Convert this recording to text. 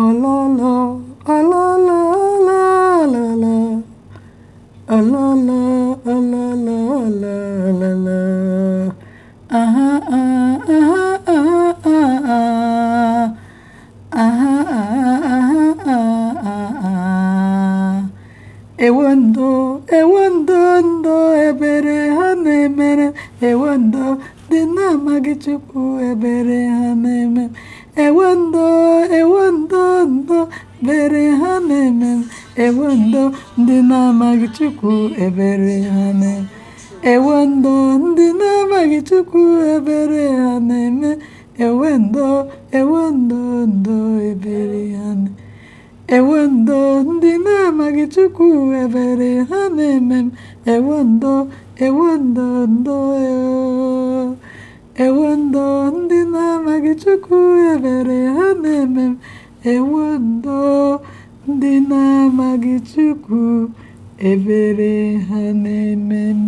Oh la la, oh la la la la la, oh la la, la la la la la, ah ah ah ah ah ah, ah ah ah ah ah Ewando, ewando ndo ebere ha na-emere, ewando dị na ewando di na ebere ha na ewando. enwe ndo ndị na-amaghị Chukwu ebere ha na-eme enwe ndo ndị na-amaghị Chukwu ebere ha na-eme enwe ndo enwe ndo ebere ha na ndị na-amaghị Chukwu ebere ha na-eme m ewe ndo ewe ndị na-amaghị Chukwu ebere ha na-eme m Ndị na-amaghị Chukwu, ebere ha na-eme m.